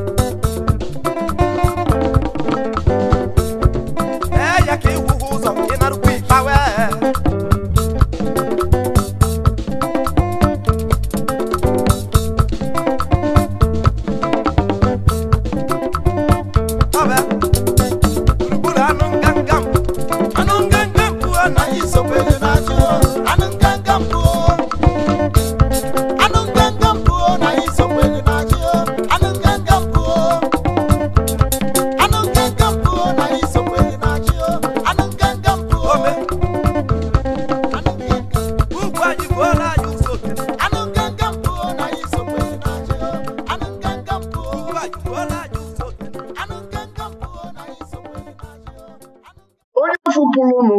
afọ pụrụ ụnụ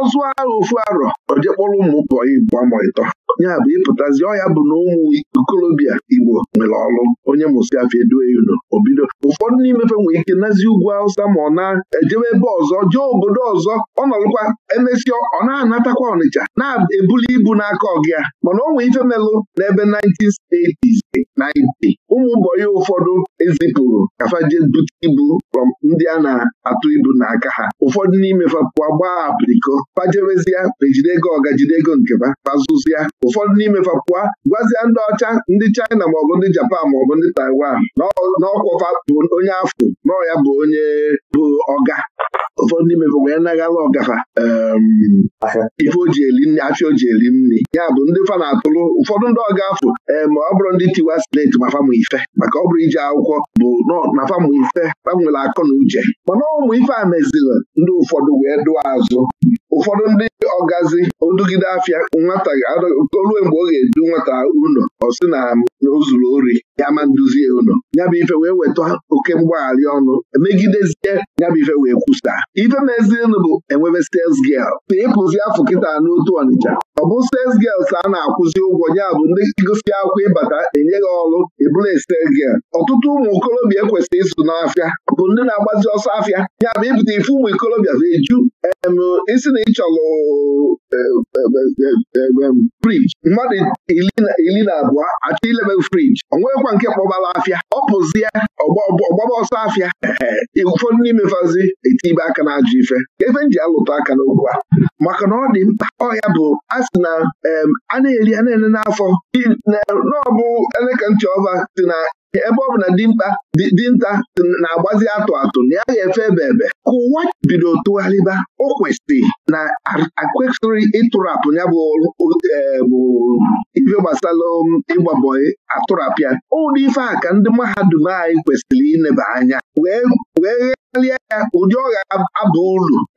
ọzụ agha ofu arọ ọjekpọrọ ụmụ ụkọ igbo amụrịtọ ya bụ ịpụtazi ọya bụ na ụmụ ikolobịa igbo nwere ọrụ onye mụsiafọ edue unu obido ụfọdụ n'imefe nwere ike nazi ugwu awụsa ma ọ na-ejebe ebe ọzọ jee obodo ọzọ ọ nọrụkwa emesịa ọ na-anatakwa ọnịcha na-ebuli ibu n'aka ọgịa mana o nwee ife melụ n'ebe 1980s 90 ụmụ mbọyị ụfọdụ ezipụrụ kafaje bute ibu ndị a na-atụ ibu n'aka ha ụfọdụ n'ime fapụwa gbaa apịrịko fajewezie ejide ego ọga jide ego nkeba fazụzia ụfọdụ n'ime fapụwa gwazia ndị ọcha ndị China maọbụ ndị Japan maọbụ ndị Taiwan n'ọkwọfa bụ onye afọ nọ ya bụ onye bụ ọga ụfọdụ n'ime fapụwa ya naghala ọgafa ehm, ife o ji eli nri afịa eli nri ya bụ ndị fa na-atụrụ ụfọdụ ndị ọga afọ ee ehm, ma ọ bụrụ ndị tiwa sleti ma ife maka ọ bụrụ ije akwụkwọ bụ na famụ ife gbanwere akọ na uche mana ụmụ ife a meziri ndị ụfọdụ wee dụọ azụ ụfọdụ ndị ọgazi odugide afịa nwata olue mgbe ọ ga-edu nwata ụlọ ọ sị na o zuru ori ya ma nduzie ụlọ ya bụ ife wee weta oke mgbagharị ọnụ emegidezie ya bụ ife wee kwusa ife mezienụ bụ enwebe sales girl na ịpụzi e afọ kịta n'otu Ọnịcha ọ bụ sales girls a na-akwụzi ụgwọ ya bụ ndị gosi akwa ịbata enye gị ọrụ ebula e stes girl ọtụtụ ụmụ okorobịa ekwesịrị ịsụ n'afịa bụ ndị na-agbazi ọsọ afịa ya bụ ịpụta ife ụmụ ikorobịa bụ eju isi na chọrọ frij mmadụ iri na abụọ achọ ilebe frij o nweghịkwa nke kpọbala afịa ọ pụzie ọgbaba ọsọ afịa ụfọdụ n'ime fazi etibe aka na ajọ ife efe m ji alụta aka n'okwu a maka na ọ dị mkpa ọhịa bụ a sị na a na-eri a na-ene n'afọ n'ọbụ eleka ntị ọba si na ebe ọ bụ na dinta na-agbazi atụ atụ na ya ga-efe ebe ebe ka ụwa bido tụgharịba o kwesịrị na akwesịrị ịtụrapụ ya e, bụ ife gbasara um, ịgbabọị atụrapịa ụdị ife a ka ndị mahadum anyị kwesịrị ineba anya karịa ya ụdị ọ ga-aba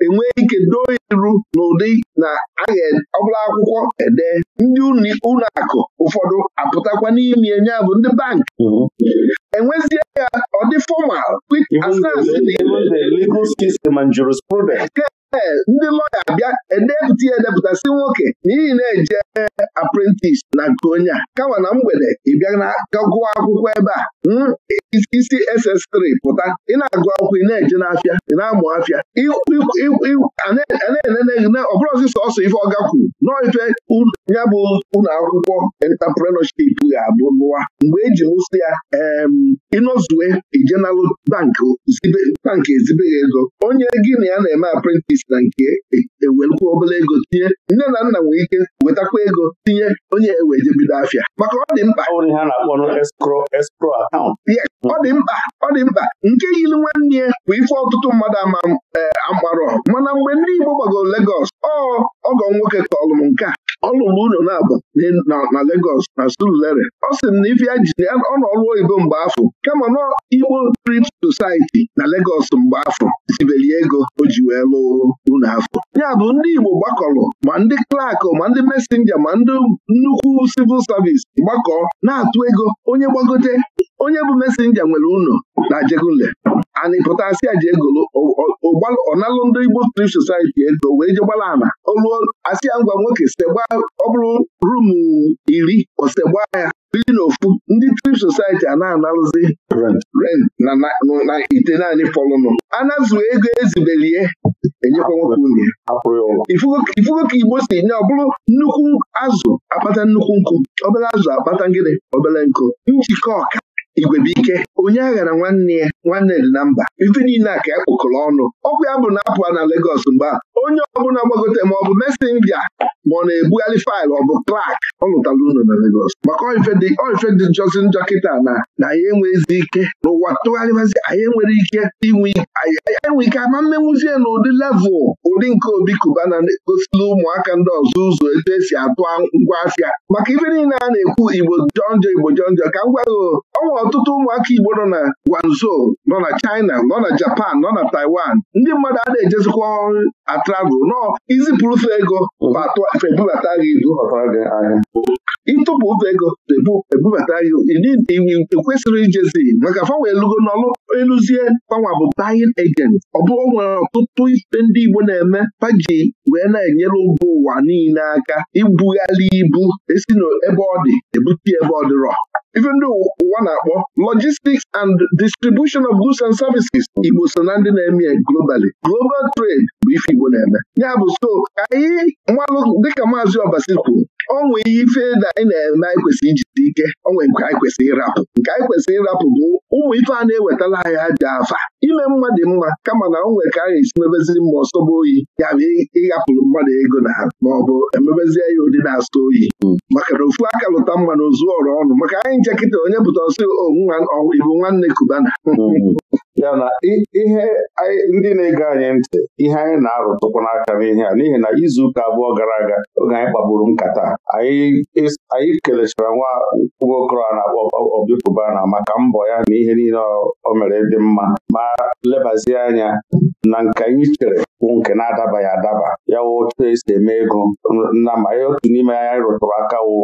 enwee ike doo iru n'ụdị na ahe ọbụla akwụkwọ ede ndị ụlọ akụ ụfọdụ apụtakwa n'ime ya bụ ndị bankị mhm. enwezie ya ọ dị fọmal ee ndị lọya bịa edepụta ya edepụta si nwoke n'ihi na-eje aprentis na nke onye a kama na mgbede ị bịa gụọ akwụkwọ ebe a hmm, isi SS3 pụta ị na-agụ akwụkwọ ị na-eje n'afịa ị na-amụ afịa ọbụrụzi sọsọ ife ọga kwuru n'ife ya bụ ụlọ akwụkwọ entaprenership ga-abụ lụwa mgbe eji mụsị ya ịnọzue ijenalụ bank ezibeghị ego onye gị na ya na-eme aprentis si na nke ewelụkwa obere ego tinye nne na nna nwere ike wetakwa ego tinye onye eweje bido afịa maka ọ dị mkpa ọ dị mkpa ọ dị mkpa nke yiri nwanne ya bụ ife ọtụtụ mmadụ ama e, amgbarọ mana mgbe ndị Igbo gbagoro legos ọgọ nwoke kọlụ m nke a ụlọ na-abụ na Legọs na Surulere ọ sị m na ife ya ji ọ nọ ọrụ oyibo mgbe afọ kama na Igbo Trip Society na Legos mgbe afọ ji wee lụọ unu afọ ya bụ ndị Igbo gbakọrọ ma ndị klak ma ndị mesenja ma ndị nnukwu sivil savis gbakọọ na-atụ ego onye gbagote onye bụ mesenja nwere ụnọ na jegunle anyị pụtasị aji egolo ọnalụ ndị Igbo Strip Society ego wee je gbara ana oluo asịa ngwa nwoke segba ọ bụrụ rumu iri osegba ya biri n'ofu ndị Trip Society a na-analụzi rent na ite naanị fọlụnụ anazuo ego ezibelie enyekwa nwoke nwunye ifugo ka Igbo si nye ọ bụrụ nnukwu azụ akpata nnukwu nkụ obere azụ akpata ngịnị obere nkụ njikọ ọka igwebike onye aghara nwanne ya nwanne dị na mba ife niile a ka ya kpokọrọ ọnụ ọkụ ya bụ na apụ na Legọs mgbe a onye ọbụla gbagote ma ọ bụ mesenja ma ọ na-ebugharị faịlụ ọ bụ klak ọ lụtala unu na Legos maka oife dị jọzi njọ kịta na na anyị enweghịzi ike n'ụwa tụgharịbazi anyị enwere ike inwe ike ama mmenwuzie na ụdị levụl ụdị nke obi Kubana na-egosila ụmụaka ndị ọzọ ụzọ etu esi atụ ngwa maka ife niile a na-ekwu igbo jọnjọ igbo jọnjọ ka m gwaghị ọnwa ọtụtụ ụmụaka igbo nọ na gwanzo nọ na China nọ na Japan nọ na Taiwan ndị mmadụ a na-ejezikwa ọrụ travel nọ izipụrụ ụzọ ego ebubata gị ibu ịtụpụ ụzọ ego ebubata gị ekwesịrị ijezi maka fanwe lugo n'ọlụ eluzie fanwa bụ buying agent ọ bụrụ nwere ọtụtụ ife ndị Igbo na-eme paji wee na-enyere mba ụwa niile aka ibugharị ibu esi n'ebe ọ dị ebute ebe ọ dịrọ even ndị ụwa na-akpọ logistics and distribution of goods and services Igbo so na ndị na-eme globally global trade bụ ife Igbo na-eme ya bụ so ka anyị dịka maazị Obasi kwuru onwe ihe ife na anyị na-eme anyị kwesịrị ijide ike onwe nke anyị kwesịrị ịrapụ nke anyị kwesịrị ịrapụ bụ ụmụ ife a na-ewetala anyị ha dị afa ime mmadụ mma kama na onwe ka a na-esi mebeziri mma ọsọba oyi ya bụ ịghapụrụ mmadụ ego na ma ọ bụ emebezie ya ụdị na-asọ oyi maka na ofu aka lụta mma zụọ ọrụ ọnụ maka anyị nche kịta onye pụta ọsọ onwe ibu nwanne kubana hmm. ya na ihe ndị na-ege anyị ntị ihe anyị na-arụtụkwa n'aka n'ihe a n'ihi na izuụka abụọ gara aga oge anyị kpagburu nkata anyị kelechara nwa nwokorọ a na-akpọ Obikwubana maka mbọ ya na ihe niile o mere dị mma ma lebazie anya na nke anyị chere bụ nke na-adabaghị adaba ya wụ otu esi eme ego Nna ma ya otu n'ime anyị rụtụrụ aka wụ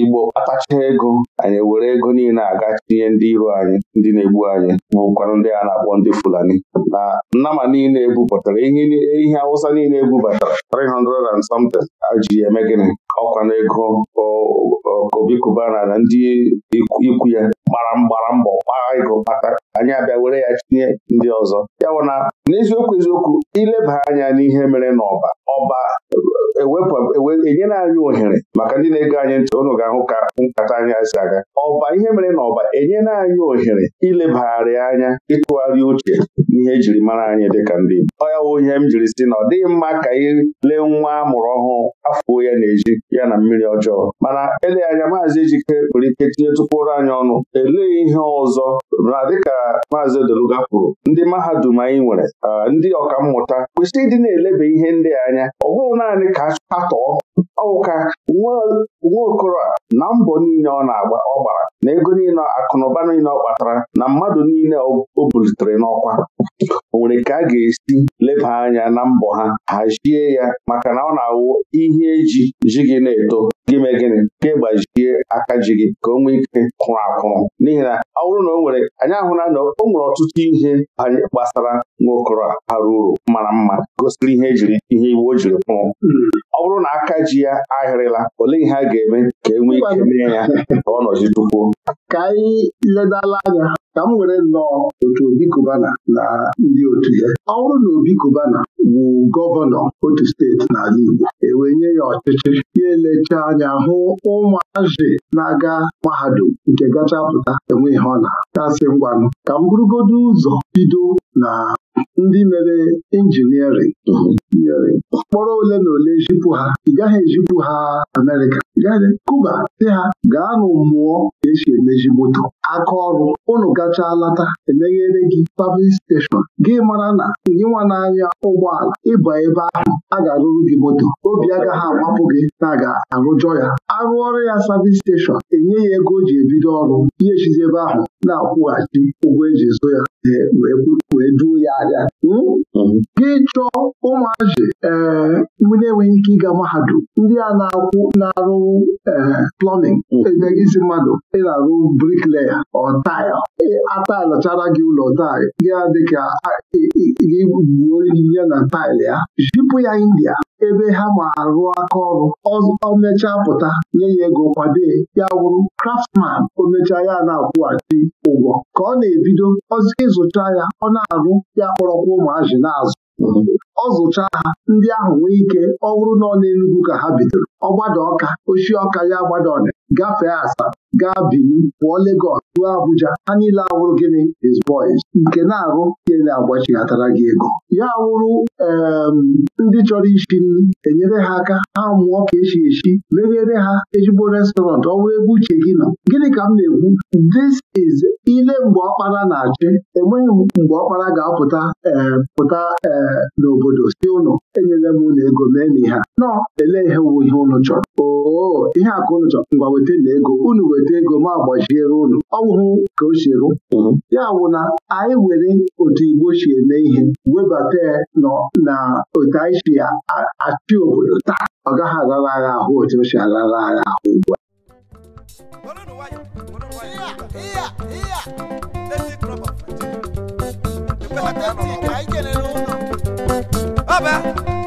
Igbo kpatacha ego anyị were ego niile aga tinye ndị iro anyị ndị na-egbu anyị bụkwanụ ndị a na-akpọ ndị Fulani na nnama niile ebupụtara ihe Awụsa niile ebubatara 300 and something aji eme gịnị ọkwa na ego Obi Kubana na ndị ikwu ya gbara mgbara mbọ gbaa ego kpata anyị abịa were ya tinye ndị ọzọ ya bụ na n'eziokwu eziokwu ileba anya n'ihe mere n'ọba ọba enyela anyị ohere maka ndị na ego anyị ntị ụnụ ga-ahụ ka nkata anyị si aga ọba ihe mere na ọba enyela anyị ohere ilebagharị anya ịtụgharị uche n'ihe ejiri mara anyị dịka ndị Igbo ọ ya wụ ihe m jiri si na ọ dịghị mma ka anyị lee nwa a mụrụ ọhụụ afọ ya na-eji ya na mmiri ọjọọ mana ele anya maazị Ejike nwere ike tinyetukwuru anyị ọnụ elee ihe ọzọ na dịka maazị Odeluga kwuru ndị mahadum anyị nwere ah, ndị ọkammụta kwesịrị ịdị na elebe ihe ndị anya ọ bụghị naanị ka achọpụta ọwụka nwaokoro a na mbọ niile ọ na-agba ọ gbara na ego niile akụnụba niile ọ kpatara na mmadụ niile o bulitere n'ọkwa o nwere ka a ga-esi leba anya na mbọ ha hazie ya maka na ọ na-awụ ihe eji ji gị na-eto gị mee gịnị ka ịgbajie aka ji gị ka o nwee ike kwụrụ akwụrụ n'ihi na ọ bụrụ na o nwere anyị ahụla na o nwere ọtụtụ ihe gbasara nwaokoro a bara uru mara mma gosiri ihe ejiri ihe iwu o jiri kwụrụ hmm. ọ bụrụ na aka ji ya ahịrịla olee ihe a ga-eme ka e nwee ike mee ya ka ọ nọzi ka anyị ledala anya ka m were nnọọ otu Obi Kubana na ndị otu ya ọ bụrụ na Obi Kubana wụ gọvanọ otu steeti n'ala Igbo ewenye ya ọchịchị ya elecha anya hụ ụmụazị na-aga mahadum nke gacha pụta enwe ihe ọ na-akasị ngwanụ ka m bụrụgodo ụzọ bido na ndị mere injiniarịn mkpọrọ ole na ole ejipụ ha ị gaghị ejipụ ha Amerịka Kuba dị ha gaa mụọ ka esi emeji moto aka ọrụ unu gachaa lata emeghere gị pavin steshọn gị mara na gị nwa n'anya ụgbọala ịba ebe ahụ a ga-arụrụ gị moto obi agaghị agbapụ gị na a ga-arụjọ ya arụọrụ ya savin steshọn enye ya ego o ji ebido ọrụ ihe ejizi ebe ahụ na-akwụghachi ụgwọ eji zụ ya e, wee duo ya ahịa hmm? Hmm. gị chọọ ụmụazị ee eh, ndị na-enweghị ike ịga mahadum ndị a na-akwụ na-arụ ee plọmin isi mmadụ ị na-arụ brikleya ọ ataịlachara gị ụlọ taịl gị adịka gị gbuo ya na taịl ya jipụ ya India ebe ha ma arụ aka ọrụ ọ pụta nye ya ego kwado ya wụrụ Craftsman omecha ya na-akwụghachi ụgwọ ka ọ na-ebido ịzụcha ya ọ na-arụ ya kpọrọkwa ụmụazị na-azụ ọ zụcha ha ndị ahụ nwee ike ọ bụrụ na ọ na-enugwu ka ha bidoro ọgbada ọka ochie ọka ya gbada ọna gafee asaa gaa Bini pụọ legos ruo Abuja ha niile awụrụ gịnị is boys nke na-arụ ele agbachighatara gị ego ya wụrụ ndị chọrọ isi nri enyere ha aka ha mụọ ka echi echi meghere ha ejigbo restọrantị ọ wụrụ ebe uche gị nọ gịnị ka m na-ekwu this is ile mgbe ọkpara na-achị enweghị mgbe ọkpara ga-apụta pụta n'obodo si ụlọ enyere m ụlọ ego mee na ihe nọ ele ihe wụ ihe ụnụ chọrọ oo ihe akụ ụnụ chọrọ ngwa weta na ego unu were. weta ego ma gbajiere ụlọ ọwụhụ ka o si ya bụ na anyị were otu Igbo si eme ihe webata ya na otu anyị si achị obodo taa ọ gaghị aghara agha ahụ otu o si agha ahụ ugbu a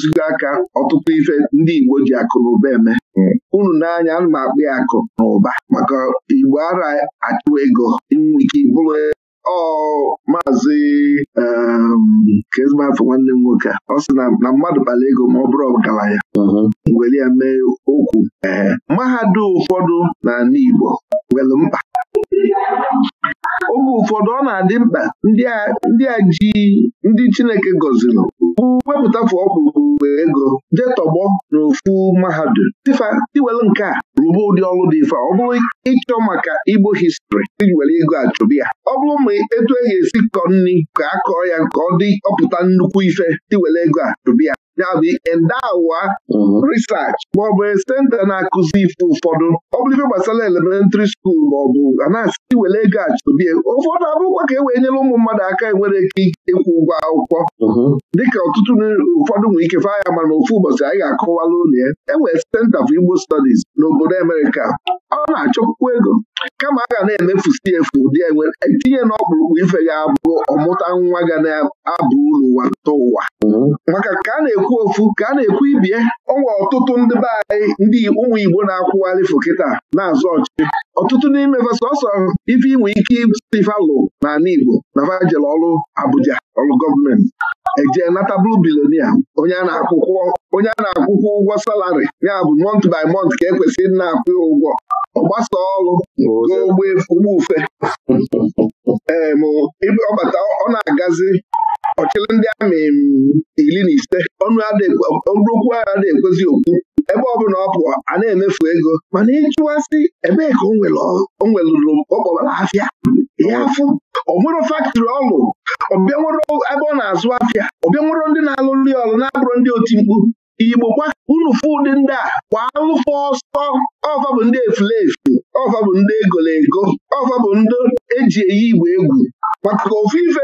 ọtụtụgo aka ọtụtụ ife ndị Igbo ji akụ na ụba eme hmm. unu n'anya ana m akpụ ya akụ na ụba maka Igbo ara achụ ego ike bụrụ ọ maazị ehm, kezmafọ nwanne m nwoke ọ sị na mmadụ kpara ego ma ọ bụrụ ya. Hmm. were ya mee okwu eh, mahadum ụfọdụ n'ala Igbo nwere mkpa oge ụfọdụ ọ na-adị mkpa ndị a ji ndị Chineke gọziri wepụta fụ ọkpụrụ ego jee tọgbọ n'ofu mahadum dịfa iwelu nke a rụba ụdị ọrụ dị ife ọ bụrụ ịchọ maka Igbo histri iji ego achọbi ya ọ bụrụ ma etu e ga-esi kọ nri ka a kọọ ya ka ọ dị ọpụta nnukwu ife tiwere ego a chụbịa ya mhm. bụ endawa research maọbụ senta na-akụzi ife ụfọdụ ọ gbasara elementịrị skuul maọbụ a na-asị were ego achụbie ụfọdụ abụrụkwa ka e wee nyere ụmụ mmadụ aka e nwere ike ịkwụ ụgwọ akwụkwọ mhm. dịka ọtụtụ ụfọdụ nwere ike faa mana ofu ụbọchị anyị ga-akọwalụ ụlọ ya enwere senta for Igbo stọdis n'obodo Amerịka ọ na-achọpụkwu ego kama a ga na-emefusi efu ụdị etinye e n'ọkpụrụkpụ ife ga-abụ ọmụta nwa ga na-abụ uru ụwa tụta ụwa maka ka a na-ekwu ofu ka a na-ekwu ibie ọnwa ọtụtụ ndị be anyị ndị ụmụ Igbo na-akwụgharị fokịta na-azụ ọchị ọtụtụ n'ime sọsọ ife inwe ike isi na n'ala Igbo na vajel ọrụ Abuja ọrụ gọọmenti eje nata blue billionaire onye a na-akwụkwọ ụgwọ salari ya bụ mont by mont ka ekwesịrị na-akwụ ya ụgwọ ọgbasa ọrụ n'ogbe ụgbọ ufe ee ọbata ọ na-agazi ọchịrị ndị amị iri na ise ọnụokwu agha na-ekwezi okwu ebe ọ bụla ọ pụọ a na-emefu ego mana ịchụwasị ebee ka o nwere ọrụ azụ afịa ọbịa nwụrụ ndị na-alụ nri ọlụ na-abụrụ ndị oti mkpu igbo kwa unu fụ ụdị ndị a kwa alụfọ ọsọ ọfa bụ ndị efulefu ọfa bụ ndị egolo ego ọfa bụ ndị eji eyi igbo egwu maka ofu ife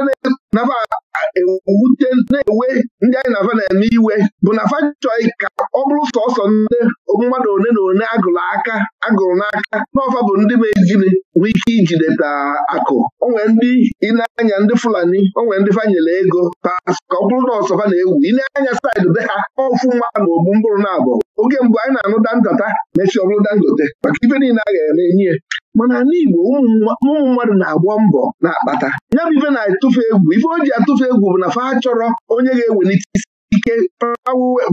na-ewe ndị anyị na-afa na-eme iwe bụ na afa chọghị ka ọ bụrụ sọsọ ndị mmadụ one na one agụrụ aka agụrụ n'aka n'ọfa bụ ndị mejiri nwee ike ijideta akụ onwe ndị ịna-anya ndị Fulani onwe ndị fanyere ego pas ka ọ bụrụ na ọsọfa na-ewu ịna-anya saịdị be ha ọfụ na ogbu mbụrụ na abụọ oge mbụ anyị na-anụ da ntata mesi ọ bụrụ Dangote maka ife niile a ga-eme enyi ya mana n'igbo ụmụ mmadụ na agbọ mbọ na-akpata ya bụ ife na-atụfe egwu ife o ji atụfe egwu bụ na fa chọrọ onye ga-ewelite isi ike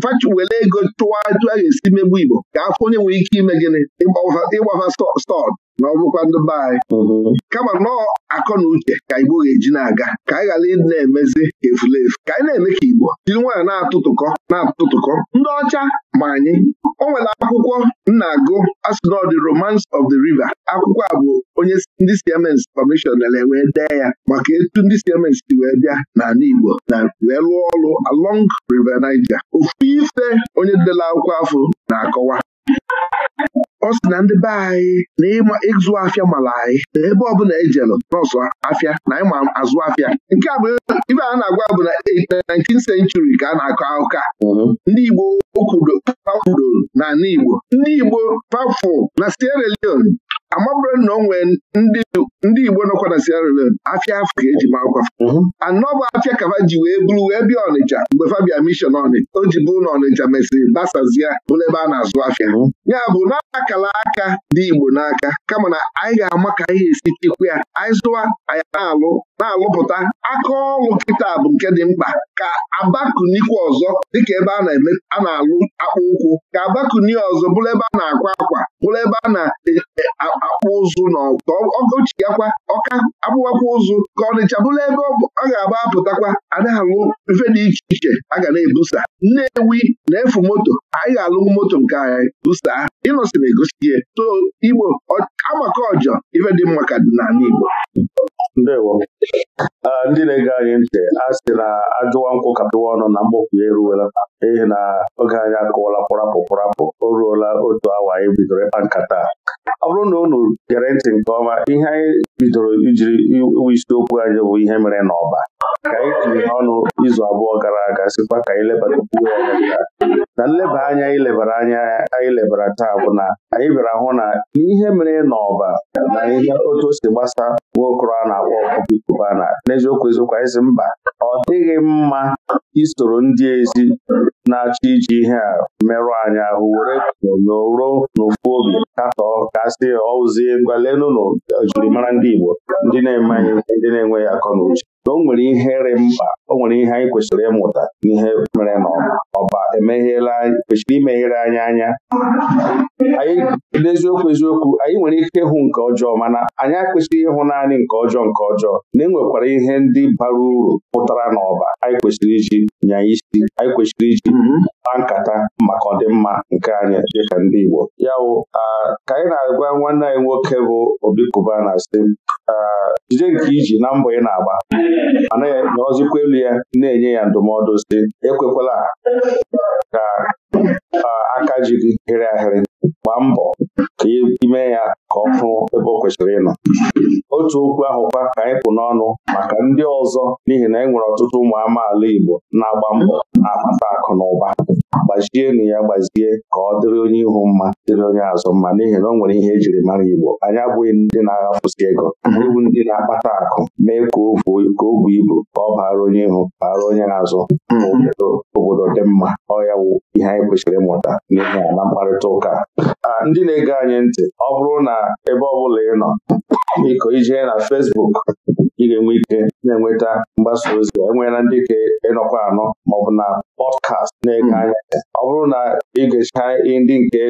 fachi ego tụwa etu a ga-esi megbu Igbo ga afọ onye nwere ike ime gịnị ịgbafa stọd ma ọ bụkwa ndị anyị mhm. kama nọọ akọ na uche ka Igbo ga-eji na-aga ka anyị ghara ịdị na-emezi efulefu ka anyị na-eme ka Igbo jiri nwaanyị na-atụtụkọ na-atụtụkọ ndị ọcha ma anyị o nwere akwụkwọ nna-agụ asịnọdị Romance of the River akwụkwọ a bụ onye ndị siemens kọmishọn wee dee ya maka etu ndị siemens si wee bịa n'ala Igbo na wee lụọ ọrụ along River Niger ofu ife onye dela akwụkwọ afọ na-akọwa ọ sị na ndị be anyị na ịma ịzụ afịa mara anyị na ebe ọbụla ejelụ nọọsụ afịa na ịma azụ afịa nke a bụ ibe a na-agwa bụ na 19th eh, century ka a na-akọ akụkọ a mhm. ndị Igbo kwudoro Igbo ndị Igbo na Sierra Leone amabụrụ na onwe ndị Igbo nọkwa na Sierra Leone afọ e mhm. ka eji maa akwa anọ bụ afịa ji wee bụrụ wee bịa Ọnịcha mgbe fabian mishọn Ọnịcha o ji bụrụ na Ọnịcha mesịrị basazia bụrụ ebe a na-azụ afịa mhm. ya bụ na akala aka dị Igbo n'aka kama na anyị ga-ama ka anyị esi chekwa ya anyị zụwa anyị na-alụ na-alụpụta aka ọlụ kịta bụ nke dị mkpa ka abakunikwu ọzọ dịka ebe a na-alụ akpụ ụkwụ ka abakuni ọzọ bụrụ ebe a na-akwa akwa bụrụ ebe a na-akpụ e, ụzụ na ọgụchiyakwa ọka akpụwakwa ụzụ ka ọnịcha bụrụ ebe ọ ga-agba apụtakwa a alụ mfe dị iche iche a ga na-ebusa nnewi na-efu moto anyị ga-alụ moto nke anyị busa ịnọsị na-egosi ihe to igbo amaka ọjọ ife dị mma ka dị n'ala igbo ndewo ndị na-ege anyị ntị a sị na ajụwa nkwụ ka ọnụ na ya eruwela ihe na oge anyị akụwala pụrapụ pụrapụ o ruola otu awa anyị bidoro ịkpa nkata ọ bụrụ na unu gere ntị nke ọma ihe anyị bidoro ijiri iwu isiokwu anyị bụ ihe mere n'ọba ka anyị tinye ọnụ izu abụọ gara aga sikwa ka anyị lebatakwu ya na nleba anya anyị lebara anya anyị lebara taa bụ na anyị bịara hụ na ihe mere n'ọba na ihe otu o si gbasa nwa okoro a na-akpọ ọkụkọ ikuba na n'eziokwu eziokwu anyị si mba ọ dịghị mma isoro ndị ezi na-achọ iji ihe a merụ anyị ahụ were n'ụrụ n'ofu obi katọọ kasị ọụzie gwalenụ n'ojirimara ndị Igbo ndị na-emanye ndị na-enweghị akọ na uche o nwere ihe rị mkpa o nwere ihe anyị kwesịrị ịmụta n'ihe mere n'ọma ọba emegheela kwesịrị imeghere anyị anya n'eziokwu eziokwu anyị nwere ike ịhụ nke ọjọọ mana anyị akwesịghị ịhụ naanị nke ọjọọ nke ọjọọ na e nwekwara ihe ndị bara uru pụtara n'ọba anyị kwesịrị iji nya isi anyị kwesịrị iji mhm. kpaa nkata maka ọdịmma nke anyị ka ndị Igbo ya wụ ka anyị na-agwa nwanne anyị nwoke bụ Obi Cubana na jide nke iji na mbọ ị na-agba mana ya elu ya na-enye ya ndụmọdụ si ekwekwala ka jiri hịrị ahịrị gbaa mbọ ka e ime ya ka ọ hụ ebe ọ kwesịrị ịnọ otu okwu ahụkwa ka anyị pụ n'ọnụ maka ndị ọzọ n'ihi na e nwere ọtụtụ ụmụ amaala Igbo na-agba mbọ na-akpata akụ na ụba gbazienụ ya gbazie ka ọ dịrị onye ihu mma dịrị onye azụ mma n'ihi na ọ nwere ihe ejiri mara Igbo anyị abụghị ndị na-aghafụsi ego iwu ndị na-akpata akụ mee ka o buo ibu ka ọ baara onye ihu baara onye azụ hmm. obodo dị mma ọ ya bụ ihe anyị kwesịrị ịmụta n'ihi na mkparịta ụka Ah, ndị na-ege anyị ntị ọ bụrụ na ebe ọ bụla ị nọ biko ijee na fesbuk ị ga-enwe ike na-enweta mgbasa ozi enweela ndị ka ịnọkwa anọ maọbụ na pọdkast na-ege hmm. anya ọ bụrụ na ị gecha ndị nke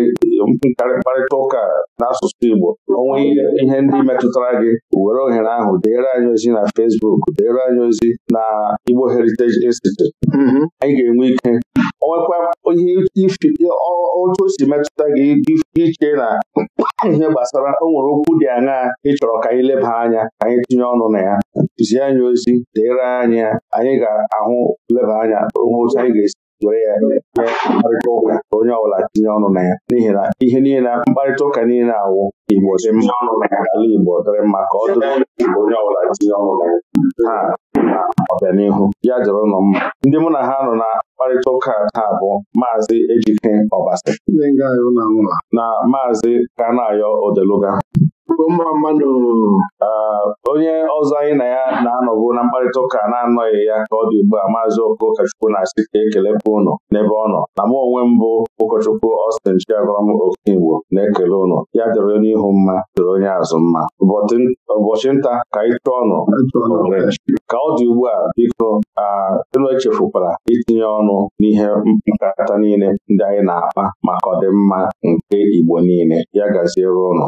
mkparịta ụka n'asụsụ Igbo onwe ihe ndị metụtara gị were ohere ahụ deere anyị ozi na Facebook deere anyị ozi na Igbo Heritage Institute mm-hmm. anyị ga-enwe ike onwekwa ihe otu o si metụta gị iche na ihe gbasara o nwere okwu dị aṅaa ị chọrọ ka anyị leba anya ka anyị tinye ọnụ na ya tizie anyị ozi deere anyị anyị ga-ahụ leba anya otu anyị ga-esi were ya mee mkparịta ụka onye ọbụla tinye ọnụ na ya n'ihi na ihe niile mkparịta ụka niile awụ Igbo dị mma ọnụ na ala Igbo dịrị mma ka ọ dịrị onye ọbụla tinye ọnụ na ya na ọbịanihu ya dịrị ụlọ mma ndị mụ na ha nọ na mkparịta ụka taa bụ Maazị Ejike Ọbasi na Maazị Kanayo Odeluga igwe mma mmanụ onye ọzọ anyị na ya na-anọbụ na mkparịta ụka na-anọghị ya ka ọ dị ugbu a maazị ụkọchukwu na-asị ka ekelepụ ụnụ n'ebe ọ nọ na m onwe mbụ ụkọchukwu Austin Chiagọrọm Okigbo na-ekele ụnụ ya dịrị onye ihu mma dịrị onye azụ mma ụbọchị nta ka anyị chụọ ọnụ ka ọ dị ugbu a biko elu echefukwara itinye ọnụ n'ihe nkata niile ndị anyị na-akpa maka ọdịmma nke Igbo niile ya gaziere ụnụ